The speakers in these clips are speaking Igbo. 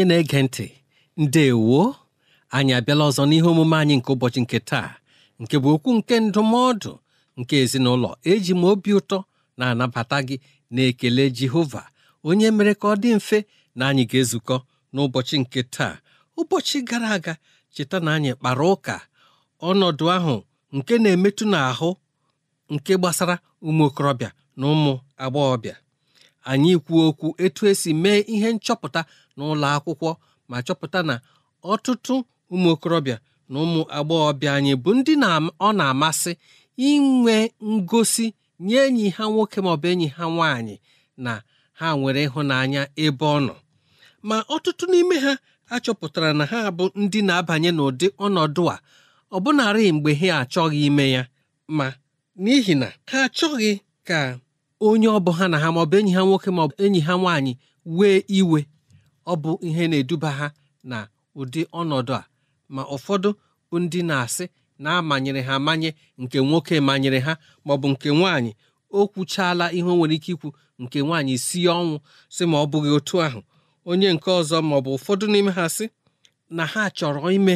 onye na-ege ntị ndewo anyị abịala ọzọ n'ihe omume anyị nke ụbọchị nke taa nke bụ okwu nke ndụmọdụ nke ezinụlọ eji m obi ụtọ na-anabata gị na-ekele Jehova onye mere ka ọ dị mfe na anyị ga-ezukọ n'ụbọchị nke taa ụbọchị gara aga cheta na anyị kpara ụka ọnọdụ ahụ nke na-emetụ n'ahụ nke gbasara ụmụ okorobịa na ụmụ agbọghọbịa anyị kwuo okwu etu esi mee ihe nchọpụta n'ụlọ akwụkwọ ma chọpụta na ọtụtụ ụmụ okorobịa na ụmụ agbọghọbịa anyị bụ ndị ọ na-amasị inwe ngosi nye enyi ha nwoke maọbụ enyi ha nwaanyị na ha nwere ịhụnanya ebe ọ nọ ma ọtụtụ n'ime ha achọpụtara na ha bụ ndị na-abanye n'ụdị ọnọdụ a ọbụnarị mgbe ha achọghị ime ya ma n'ihi na ha achọghị ka onye ọ bụ ha na ha maọbụ enyi ha nwoke maọbụ enyi ha nwaanyị wee iwe ọ bụ ihe na-eduba ha na ụdị ọnọdụ a ma ụfọdụ bụ ndị na-asị na-amanyere ha amanye nke nwoke manyere ha maọbụ nke nwaanyị o kwuchaala ihe o nwere ike ikwu nke nwaanyị si ọnwụ sị ma ọ bụghị otu ahụ onye nke ọzọ maọbụ ụfọdụ n'ime ha sị na ha chọrọ ime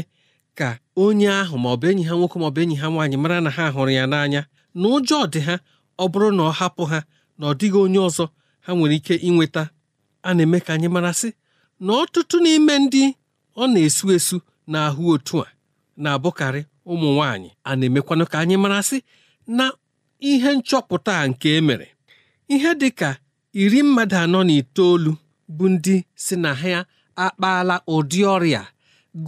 ka onye ahụ maọbụ enyi ha nwoke bụ enyi ha nwaanyị mara na ha hụrụ ya n'anya na ụjọ dị ha ọ bụrụ na ọ hapụ ha na ọ dịghị onye ọzọ ha nwere ike inweta a na-eme ka anyị marasị na ọtụtụ n'ime ndị ọ na-esu esu esu na otu a na-abụkarị ụmụ nwanyị a na-emekwanụ ka anyị marasị na ihe nchọpụta nke emere ihe dị ka iri mmadụ anọ na itoolu bụ ndị si na ha akpaala ụdị ọrịa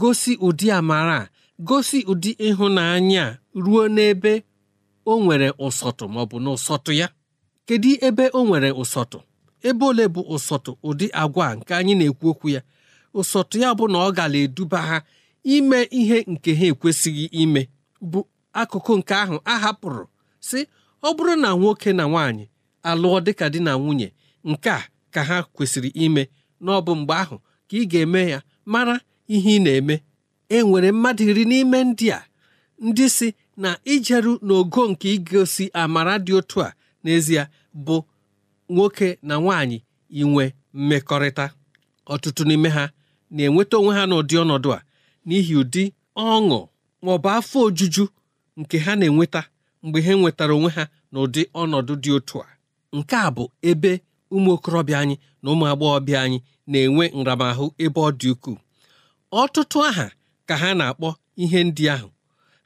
gosi ụdị amara gosi ụdị ịhụnanya ruo n'ebe o nwere ụsọtụ maọbụ na ụsọtụ ya kedu ebe o nwere ụsọtụ ebe ole bụ ụsọtụ ụdị agwa nke anyị na-ekwu okwu ya ụsọtụ ya bụ na ọ gara eduba ha ime ihe nke ha ekwesịghị ime bụ akụkụ nke ahụ a hapụrụ si ọ bụrụ na nwoke na nwaanyị alụọ dịka di na nwunye nke a ka ha kwesịrị ime na ọ bụ mgbe ahụ ka ị ga-eme ya mara ihe ị na-eme e nwere mmadụ iri n'ime ndị a ndị si na ijeru n'ogo nke igosi amara dị otu a n'ezie bụ nwoke na nwaanyị inwe mmekọrịta ọtụtụ n'ime ha na-enweta onwe ha n'ụdị ọnọdụ a n'ihi ụdị ọṅụ ma ọ bụ afọ ojuju nke ha na-enweta mgbe ha nwetara onwe ha n'ụdị ọnọdụ dị otu a nke a bụ ebe ụmụ okorobịa anyị na ụmụ agbọghọbịa anyị na-enwe nramahụ ebe ọ dị ukwuu ọtụtụ aha ka ha na-akpọ ihe ndị ahụ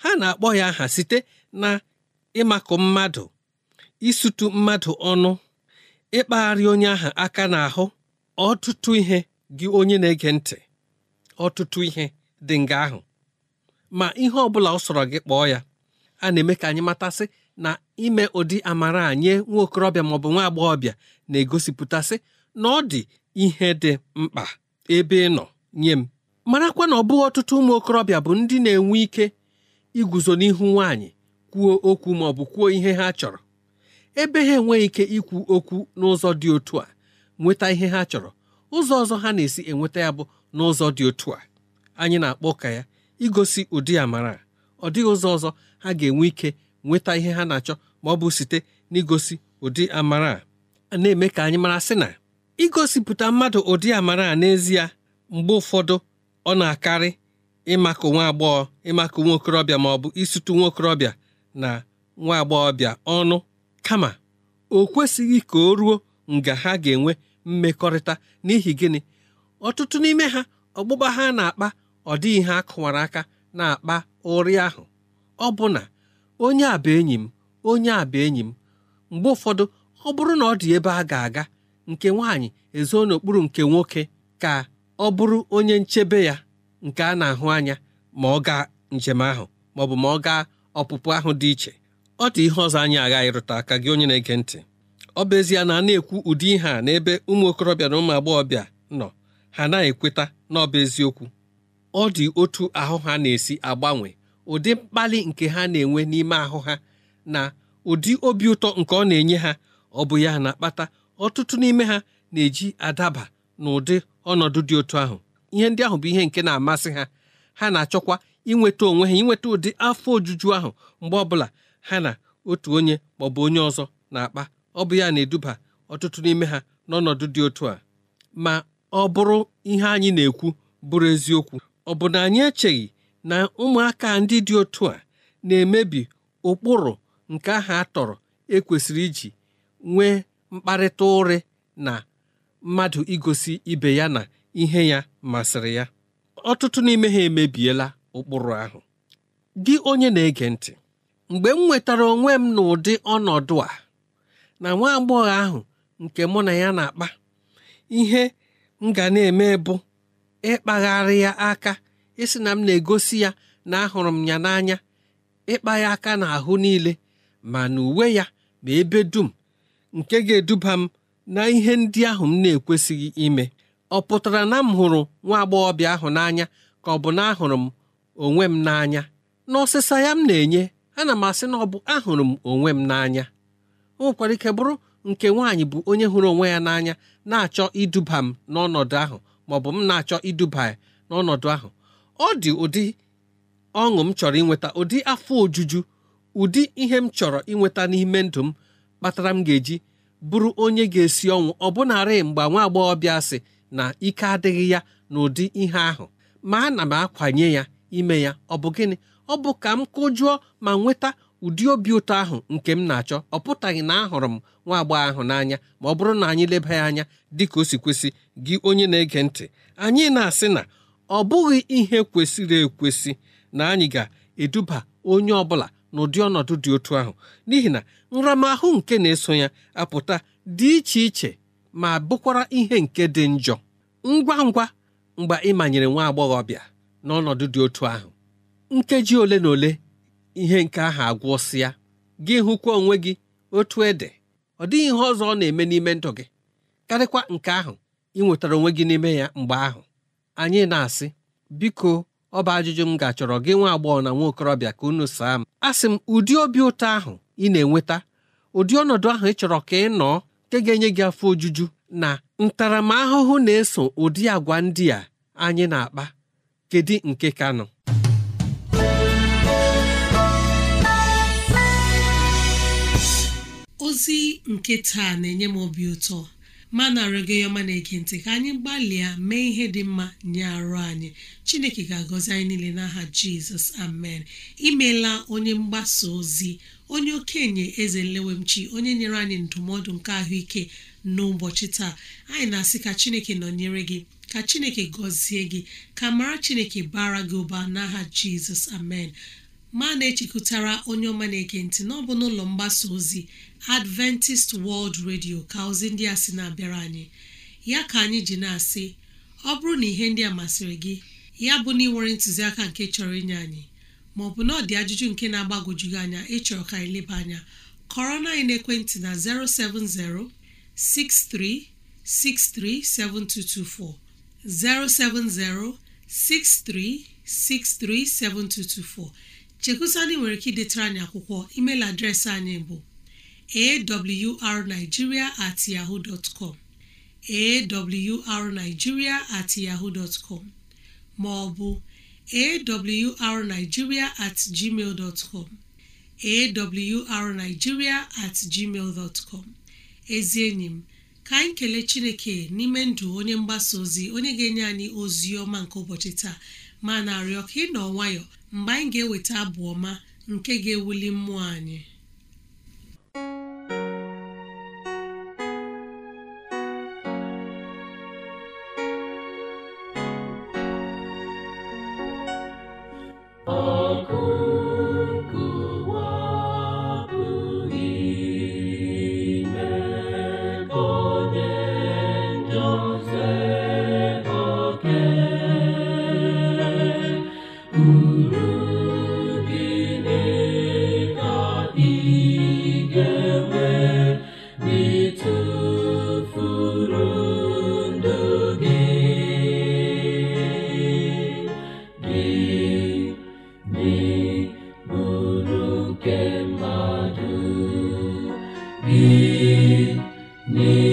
ha na-akpọ ya aha site na ịmakụ mmadụ isutu mmadụ ọnụ ịkpagharị onye ahụ aka n'ahụ ọtụtụ ihe gị onye na-ege ntị ọtụtụ ihe dị nga ahụ ma ihe ọ bụla ọ sọrọ gị kpọọ ya a na-eme ka anyị matasị na ime ụdị amara nye nwa okorobịa maọbụ nwa agbọghọbịa na-egosipụtasị na ọ dị ihe dị mkpa ebe ị nọ nye m marakwa na ọ bụghị ọtụtụ ụmụ okorobịa bụ ndị na-enwe ike iguzo n'ihu nwaanyị kwuo okwu maọbụ kwuo ihe ha chọrọ ebe ha enweghị ike ikwu okwu n'ụzọ dị otu a nweta ihe ha chọrọ ụzọ ọzọ ha na-esi enweta ya bụ n'ụzọ dị otu a anyị na-akpọ ka ya igosi ụdị amara ọ dịghị ụzọ ọzọ ha ga-enwe ike nweta ihe ha na-achọ ma ọ bụ site n'igosi ụdị amara a na-eme ka anyị mara sị na igosipụta mmadụ ụdị amara a n'ezie mgbe ụfọdụ ọ na-akarị ịmakụ nwa agbọghọ ịmakụ nwa okorobịa ma ọ bụ nwa okorobịa na nwa agbọghọbịa ọnụ kama o kwesịghị ka o ruo nga ha ga-enwe mmekọrịta n'ihi gịnị ọtụtụ n'ime ha ọgbụgba ha na-akpa ọ dịghị ha kụwara aka na-akpa ụrị ahụ ọ bụ na onye a bụ enyi m onye aba enyi m mgbe ụfọdụ ọ bụrụ na ọ dị ebe a ga-aga nke nwaanyị ezo n'okpuru nke nwoke ka ọ bụrụ onye nchebe ya nke a na-ahụ anya ma ọ gaa njem ahụ ma ọ bụ ma ọ gaa ọpụpụ ahụ dị iche ọ dị ihe ọzọ anyị aghaghị ịrụta aka gị onye na-ege ntị ọ bụ ezie na a na-ekwu ụdị ihe a n'ebe ụmụ okorobịa na ụmụ agbọghọbịa nọ ha na-ekweta na ọ bụ eziokwu ọ dị otu ahụ ha na-esi agbanwe ụdị mkpali nke ha na-enwe n'ime ahụ ha na ụdị obi ụtọ nke ọ na-enye ha ọ bụ ya na-akpata ọtụtụ n'ime ha na-eji adaba na ụdị ọnọdụ dị otu ahụ ihe ndị ahụ bụ ihe nke na-amasị ha ha na-achọkwa inweta onwe ha inweta ụdị afọ ojuju ahụ mgbe ọbụla ha na otu onye maọbụ onye ọzọ na-akpa ọ bụ ya na-eduba ọtụtụ n'ime ha n'ọnọdụ dị otu a ma ọ bụrụ ihe anyị na-ekwu bụrụ eziokwu ọ bụ na anyị echeghị na ụmụaka ndị dị otu a na-emebi ụkpụrụ nke ahụ a tọrọ ekwesịrị iji nwee mkparịta ụrị na mmadụ igosi ibe ya na ihe ya masịrị ya ọtụtụ n'ime ha emebiela ụkpụrụ ahụ gị onye na-ege ntị mgbe m nwetara onwe m n'ụdị ọnọdụ a na nwa agbọghọ ahụ nke mụ na ya na-akpa ihe m ga na-eme bụ ịkpagharị ya aka ịsị na m na-egosi ya na ahụrụ m ya n'anya ịkpa ya aka ahụ niile ma na uwe ya ma ebe dum nke ga-eduba m na ihe ndị ahụ m na-ekwesịghị ime ọ pụtara na m hụrụ nwa agbọghọbịa ahụ n'anya ka ọ bụ na ahụrụ m onwe m n'anya ọsịsa ya m na-enye ana m asị na ọ bụ ahụrụ m onwe m n'anya o nwekwara ike bụrụ nke nwaanyị bụ onye hụrụ onwe ya n'anya na-achọ iduba m n'ọnọdụ ahụ ma ọ bụ m na-achọ iduba ya n'ọnọdụ ahụ ọ dị ụdị ọṅụ m chọrọ inweta ụdị afọ ojuju ụdị ihe m chọrọ inweta n'ime ndụ m kpatara m ga-eji bụrụ onye ga-esi ọnwụ ọbụnarị mgbe nwa agbọghọbịa sị na ike adịghị ya na ụdị ihe ahụ ma ana m akwanye ya ime ya ọ bụ gịnị ọ bụ ka m kụjụọ ma nweta ụdị obi ụtọ ahụ nke m na-achọ ọ pụtaghị na ahụrụ m nwa agbọghọ ahụ n'anya ma ọ bụrụ na anyị leba anya dị ka o si kwesị gị onye na-ege ntị anyị na-asị na ọ bụghị ihe kwesịrị ekwesị na anyị ga-eduba onye ọ bụla n'ụdị ọnọdụ dị otu ahụ n'ihi na nramahụ nke na-eso ya apụta dị iche iche ma bụkwara ihe nke dị njọ ngwa ngwa mgbe ịmanyere nwa agbọghọ ọbịa n'ọnọdụ dị otu ahụ nkeji ole na ole ihe nke ahụ agwụsịa gị hụkwa onwe gị otu ede ọ dịghị ihe ọzọ ọ na-eme n'ime ndụ gị karịkwa nke ahụ ị nwetara onwe gị n'ime ya mgbe ahụ anyị na-asị biko ọ bụ ajụjụ m ga-achọrọ gị nwa agbọghọ na nwa okorobịa ka unu saa m a sị m ụdị obi ụtọ ahụ ị na-enweta ụdị ọnọdụ ahụ ị chọrọ ka ị nọọ nke ga-enye gị afọ ojuju na ntaramahụhụ na-eso ụdị agwa ndị a anyị na-akpa kedu nke ka nọ ozi nke taa na-enye m obi ụtọ ma na-arịọ ọma na-ege ntị ka anyị gbalịa mee ihe dị mma nye arụ anyị chineke ga-agọzi anyị niile n'aha jizọs amen imela onye mgbasa ozi onye okenye eze nlewemchi onye nyere anyị ndụmọdụ nke ahụike n'ụbọchị taa anyị na-asị ka chineke nọnyere gị ka chineke gọzie gị ka mara chineke bara gị ụba n'aha jizọs amen ma na-echekọtara onye ọma na-ege bụ n'ọbụ n'ụlọ mgbasa ozi adventist world radio ka ozi ndị a sị na-abịara anyị ya ka anyị ji na-asị ọ bụrụ na ihe ndị a masịrị gị ya bụ na ịnwere ntụziaka nke chọrọ inye anyị bụ na ọ dị ajụjụ nke na-agbagwoju gị anya ịchọrọ ka anyị leba anya kọrọ na anyị naekwentị na 070 6363 070 6363 7224 chekusandị nwere ike idetara anyị akwụkwọ email adreesị anyị bụ awrnigeria at yahoo dot com at yahoo dot com ma awrnigeria at gmail dot com at gmail dot com ezi enyi m ka anyị kelee chineke n'ime ndụ onye mgbasa ozi onye ga-enye anyị ozi ọma nke ụbọchị taa ma na-arịọ ka ị nọ nwayọọ mgbe anyị ga-eweta abụ ọma nke ga-ewuli mmụọ anyị Ị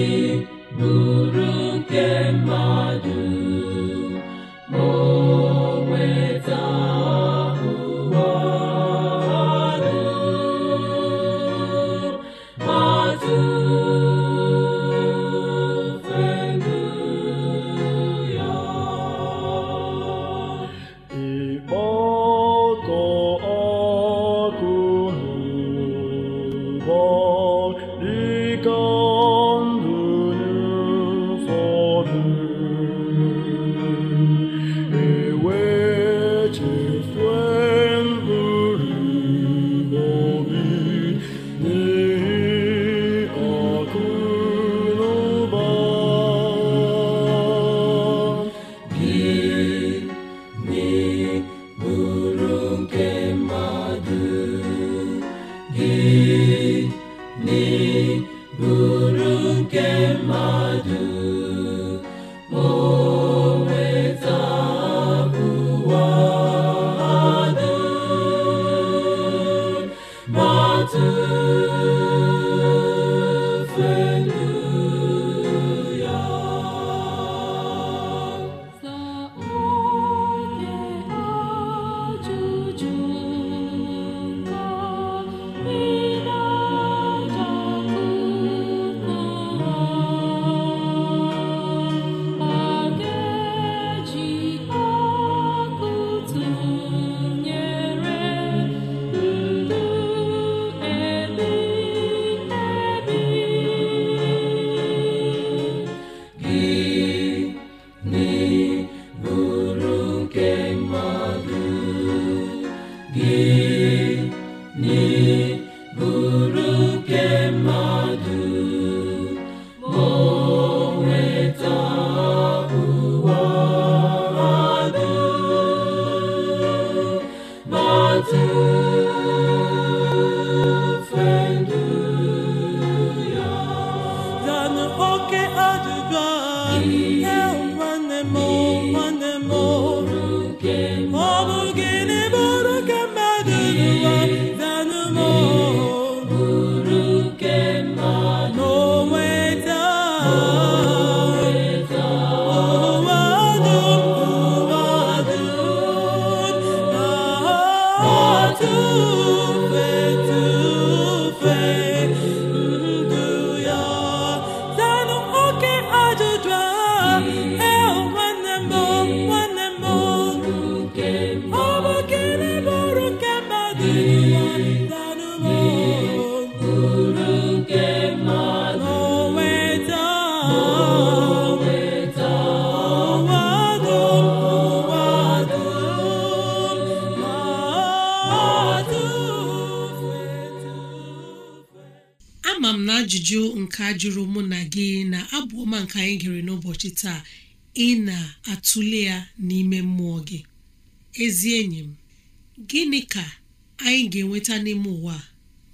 n'ụbọchị taa ị na-atụle ya n'ime mmụọ gị ezi enyi m gịnị ka anyị ga-enweta n'ime ụwa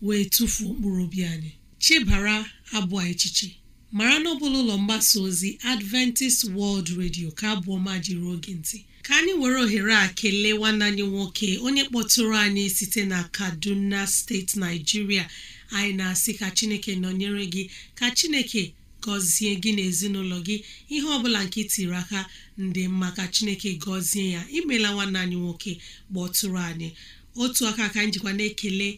wee tụfuo mkpụrụ obi anyị chebara abụọ echiche mara na ọbụla ụlọ mgbasa ozi Adventist World Radio ka abụọ ma jiri oge ntị ka anyị were ohere a kelee nwanne anyị nwoke onye kpọtụrụ anyị site na Kaduna steeti naijiria anyị na-asị ka Chineke nọnyere gị ka Chineke gọzie gị n'ezinụlọ ezinụlọ gị ihe ọbụla nke tiri aka ndị maka chineke gọzie ya imela nwanne anyị nwoke kpọtụrụ anyị otu aka ka njikwa na-ekele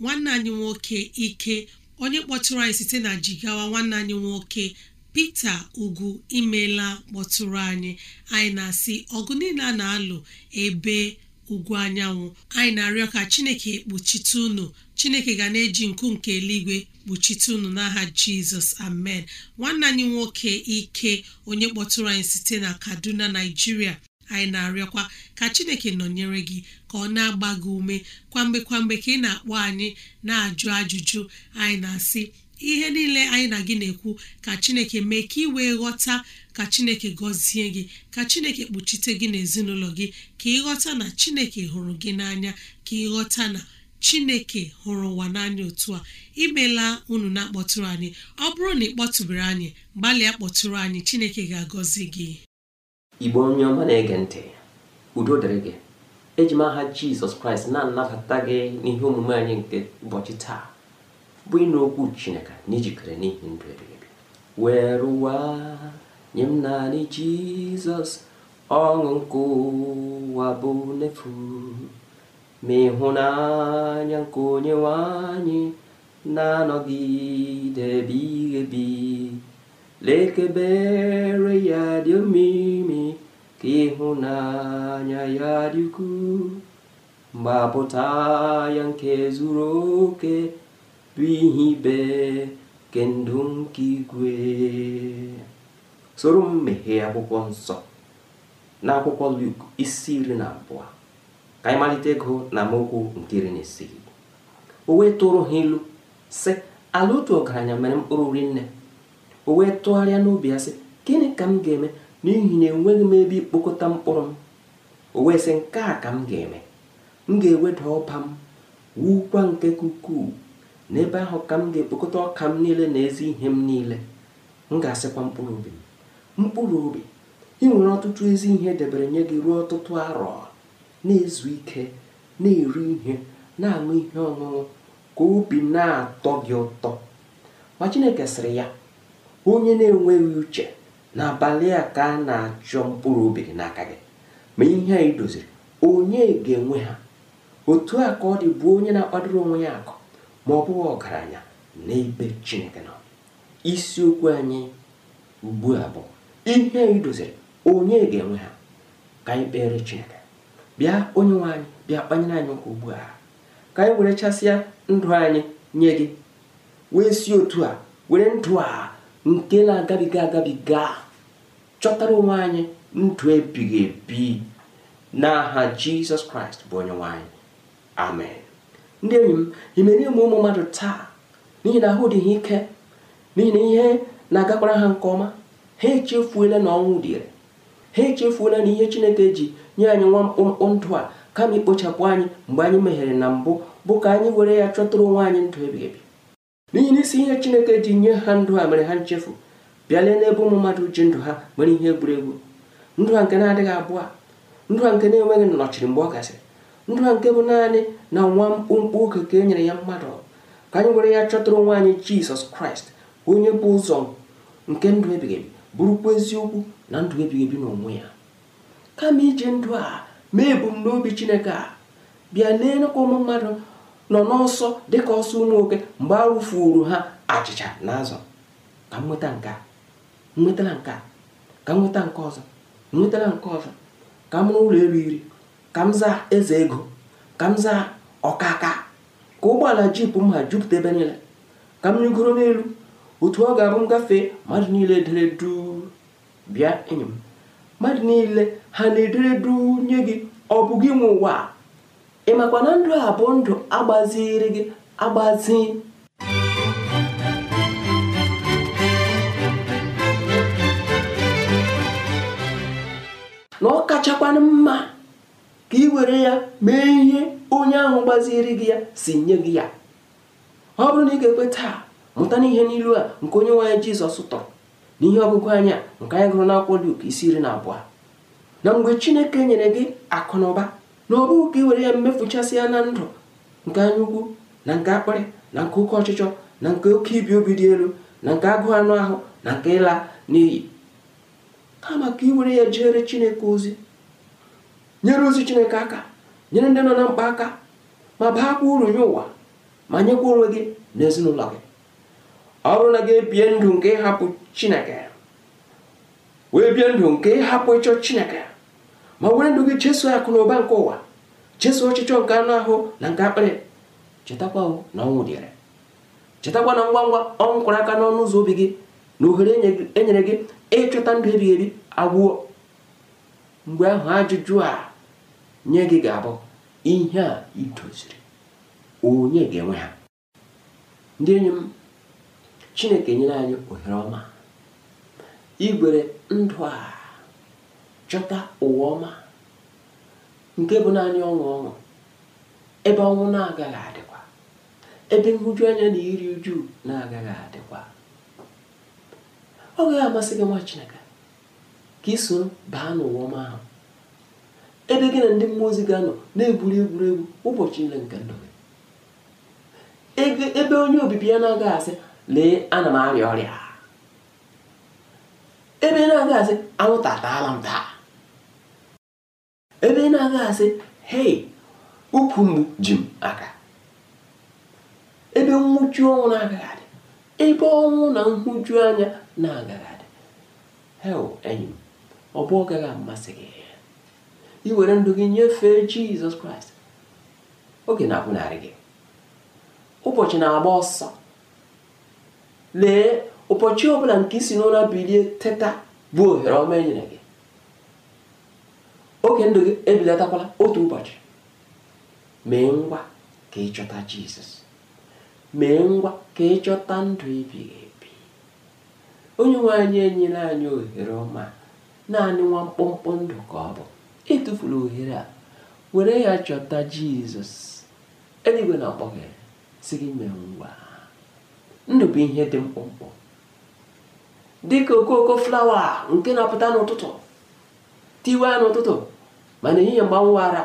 nwanne anyị nwoke ike onye kpọtụrụ anyị site na jigawa nwanne anyị nwoke Pita ugwu imela kpọtụrụ anyị anyị na-asị ọgụ niile a na-alụ ebe ugwu anyanwụ anyị na-arịọ ka chineke kpuchite ụnụ chineke ga na-eji nku nke eluigwe kpuchite ụnụ n'aha jizọs amen nwanne anyị nwoke ike onye kpọtụrụ anyị site na kaduna naijiria anyị na-arịọkwa ka chineke nọnyere gị ka ọ na-agba gị ume kwamgbe kwamgbe ka ị na-akpọ anyị na-ajụ ajụjụ anyị na-asị ihe niile anyị na gị na-ekwu ka chineke mee ka ị wee ghọta ka chineke gọzie gị ka chineke kpuchite gị n'ezinụlọ gị ka ị ghọta na chineke hụrụ gị n'anya ka ị ghọta na chineke hụrụ ụwa n'anya otu a imela unu na-akpọtụrụ anyị ọ bụrụ na ị kpọtụbere anyị gbalịa kpọtụrụ anyị chineke ga-agọzi gị igbo onye ọma na-ege ntị udo dịrị gị eji jizọs kraịst na-anabata gị n'ihe omume anyị nke ụbọchị taa bụ ị okwu chineke na n'ihi ndụ ebighị were ụwa nye m naanị jizọs ọṅụ nke ụwa bụ n'efu ma ịhụnanya nke onye nwanyị na-anọgide ebighị ebi lekebere ya dị omimi ka ịhụnanya ya dị ukwuu mgbapụta ya nke zuru oke bụ ihe ibe ke nke igwe soro m meghee akwụkwọ nsọ n'akwụkwọ Luk isi iri na abụọ ka anyị malite ego na amaokwu nke iri na isii o wee tụrụ ha ilu sị ala otu ọgaranya mere mkpụrụ rinne o wee tụgharịa n'obi ya sị gịnị ka m ga-eme n'ihi na enweghị m ebe ikpokọta mkpụrụ m o wee sị nke a ka m ga-eme m ga-eweda ọba m wukwa nke ukwuu n'ebe ahụ ka m ga-ekpokọta ọka m niile na ezi ihe m niile m ga-asịkwa mkpụrụ obi mkpụrụ obi ị nwere ọtụtụ ezi ihe debere nye gị ruo ọtụtụ arọ na-ezu ike na-eri ihe na-aṅụ ihe ọṅụṅụ ka obi na-atọ gị ụtọ ma Chineke sịrị ya onye na-enweghị uche n'abalị a ka a na-achọ mkpụrụ obi gị n'aka gị ma ihe a idoziri onye ga-enwe ha otu a ka ọ dị bụ onye na-akpadoro onwe ya akụ ma ọ bụghị ọgaranya n'ebe chineke nọ isiokwu anyị ugbu a bụ ihe idoziri onye ga-enwe ha ka anyị kpere chineke bịa onye nwe bịa kpanyere anyị ụka ugbu a ka anyị were chasịa ndụ anyị nye gị wee si otu a were ndụ a nke na-agabiga agabiga chọtara onwe anyị ndụ ebighị ebi n'aha jizọs kraịst bụ onye nwanyị amen ndị enyi m imere ụmụ ụmụ mmadụ taa n'ihi na ahụ dị ike n'ihi na ihe na-agakwara ha nke ọma ha echefuola na ọnwụ dịre ha echefuola na ihe chineke ji nye anyị nwa mkpụmkpụ ndụ a kama ikpochapụ anyị mgbe anyị meghere na mbụ bụ ka anyị were ya chọtụrụ onwe anyị ndụ ebighị ebi n'ihi na isi ihe chineke ji nye ha ndụ a mere ha nchefu bịalee n'ebe ụmụ mmadụ ji ndụ ha mere ihe egwuregwu ndụ ha nke na-adịghị abụọ ndụ ha nke na-enweghị nnọchiri mgbe ọ gasịrị ndụ a nke bụ naanị na nwa mkpụmkpụ oke ka e nyere ya mmadụ ka anyị were ya chọtara onwe anyị jizọs kraịst onye bụ ụzọ nke ndụ ebighị ebi bụrụkwa eziokwu na ndụ ebighị ebi n'onwe ya kama iji ndụ a mee ebumnobi chineke a bịa n'enekwa ụmụ mmadụ nọ n'ọsọ dịka ọsọ ụmụ nwoke mgbe a rụfuru ha achịcha na azụ ka m nweta nke nwetala nke ka m nweta nke ọzọ nwetara nke ọzọ ka m rụọ ụlọ elu iri ka m zaa eze ego ka m zaa ọkaka ka ụgbọala jip m ha jupụta ebe niile ka m rigoro n'elu otu ọ ga-abụ m gafee mmadụ niile dere bịa enyi m mmadụ niile ha na-edere duu nye gị ọ bụ gị nwe ụwa ịmakwa na ndụ a bụ ndụ agbaziri gị agbazi na ọ kachakwana mma ka ị were ya mee ihe onye ahụ gbaziri gị ya si nye gị ya ọ bụrụ na ị ga-ekwe taa mụta n'ihe n'ilu a nke onye nwe anyị jizọs tọrọ n'ihe ọgụgụ anya nke anyị gụrụ n'akwụkwọ Luk isi iri na abụọ na mgbe chineke nyere gị akụ na ụba na ọ bụghị ka ị were ya ya na ndụ nke anyaukwu na nke akpịrị na nke oke ọchịchọ na nke oke ibi obi dị elu na nke agụụ anụ ahụ na nke ịla n'iyi kama ka ị were ya jere chineke ozi nyere ozi chineke aka nyere ndị nọ na mkpa aka ma baakwa uru nye ụwa ma nyekwa onwe gị na ezinụlọ gị ọ bụrụ na gị ebie ndụ nke ịhapụ chineke wee bie ndụ nke ịhapụ ịchọ chineke ma were ndụ gị chesụ akụ na ụba nke ụwa chesụ ọchịchọ nke anụ ahụ na nke akpịrị chetakwa na ọnwụ dịrị chetakwa na ngwa ngwa ọnwụ kwara aka n'ọnụ ụzọ obi gị na ohere enyere gị ịchọta ndụ ebighị ebi agwụọ mgbe ahụ ajụjụ a nye gị ga-abụ ihe a i idoziri onye ga-enwe ha ndị enyi m chineke nyere anyị ohere ọma igwere ndụ a chọta ụwa ọma nke bụ naanị ọṅụ ọṅụ ebe ọnwụ na-agaghị adịkwa ebe nhụju anya na iri uju na-agaghị adịkwa ọ gaghị amasị gị nwa chineke ka iso baa n'ụwa ọma ahụ ebe gị na ndị mmụọ ozi ga-anọ na-egwuri egwuregwu ụbọchị niile nke ndụ gị ebe onye obibi ya na-agaghị asị lee ana m arịa ọrịa ebe ị na-agaghị asị anwụnta ataala m taa ebe ị na-agaghị asị hei ukwu mgbu ji m aka ebe nwụchu ọnwụ na-agaghị adị ebe ọnwụ na nhụju anya na-agaghị adị hel enyi m ọ bụ ọ gaghị amasị gị iwere ndụ gị nyefee jizọs kraịst oge na-akwụnarị gị ụbọchị na-agba ọsọ lee ụbọchị ọbụla nke isi n'ụra bilie teta bụ ohere ọma e nyere gị oge ndụ gị ebilatakwala otu ụbọchị mee ngwa ka ịchọta jizọs mee ngwa ka ịchọta ndụ ibighị ebi onye nwe anyị enyela anyị ohere ọma naanị nwa mkpụmkpụ ndụ ka ọ bụ etufula ohere a were ya chọta jizọs eluigwe na-akpọ gị si gị mee ngwa ndụ bụ ihe dị mkpụmkpụ dịka okooko flawa nke na-apụta n'ụtụtụ tiwe n'ụtụtụ mana ehihie mgbanwe ara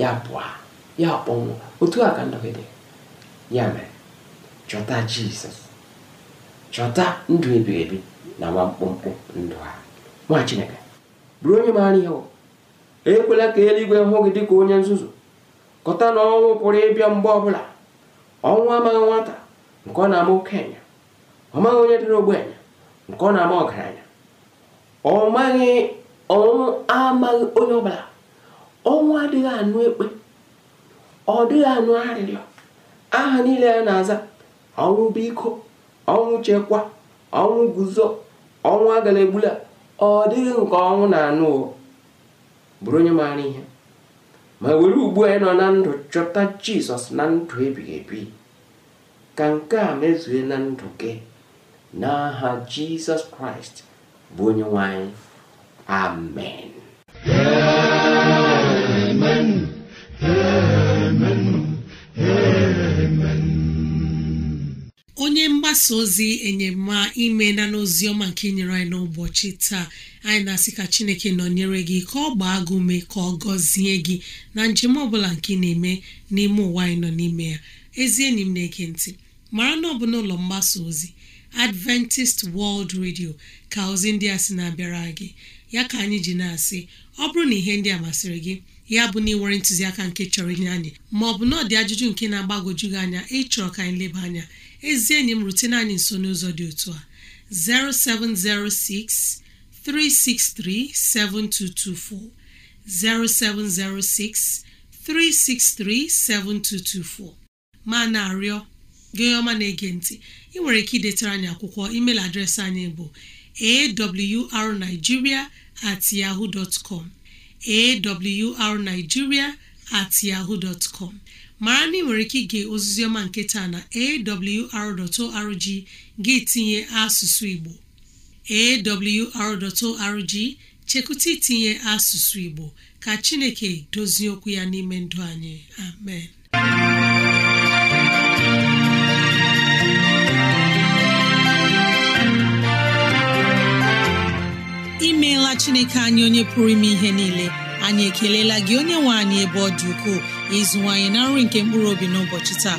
ya pụa ya kpọnwụ otu a ka ndụ gị dị ya mere chọta jizọs chọta ndụ ebighị ebi na nwa mkpụmkpụ ndụ ha nwa chineke bụrụ onye maara ihe ekwela ka eluigwe hụ gị dịka onye nzuzu kọta na ọnwụ pụrụ ịbịa mgbe ọbụla ọnwụ amaghị nwata nke ọ na-ama okenye onye dịrị ogbenye nke ọ na-ama ọgaranya ọ ọnwụ amaghị onye ọbụla ọnwụ adịghị anụ ekpe ọ dịghị anụ arịrịọ aha niile ya na-aza ọnwụ biko ọnwụ chekwa ọnwụ guzo ọnwụ agala egbula ọ dịghị nke ọnwụ na-anụ bụrụ onye maara ihe ma were ugbu anyị nọ na ndụ chọta jizọs na ndụ ebighị ebi ka nke a mezue na ndụ gị n'aha jizọs kraịst bụ onye nwanyị amen onye mgbasa ozi enyema ime na n'oziọma nke nyere anyị n'ụbọchị taa anyị na-asị ka chineke nọnyere gị ka ọ gbaa gị ume ka ọ gọzie gị na njem ọbụla nke na-eme n'ime ụwa anyị nọ n'ime ya ezi enyi m na-ege ntị mara na ọ bụ n'ụlọ mgbasa ozi Adventist World Radio ka ozi ndị a sị na-abịara gị ya ka anyị ji na-asị ọ bụrụ na ihe ndị a masịrị gị ya bụ na ịnwere ntụziaka nke chọrọ inye anyị maọbụ na ọ dị ajụjụ nke na-agbagwoju gị anya ịchọrọ ka anyị leba anya ezi enyi m rutena anyị nso n'ụzọ dị otu a 0706 363 7224 0706 363 7224 ma na-arịọ gị ọma na-ege ntị ị nwere ike idetara anyị akwụkwọ email adreesị anyị bụ awrnigeria at yahoo dot com awrnigeria at yahoo dot com mara na ị nwere ike ige ọma nke taa na awr.org gị tinye asụsụ Igbo awr.org chekwụta itinye asụsụ Igbo ka Chineke dozie okwu ya n'ime ndụ anyị amen imeela Chineke anyị onye pụrụ ime ihe niile anyị ekelela gị onye nwe anyị ebe ọ dị ukwuu ịzụwanyị na nri nke mkpụrụ obi n'ụbọchị taa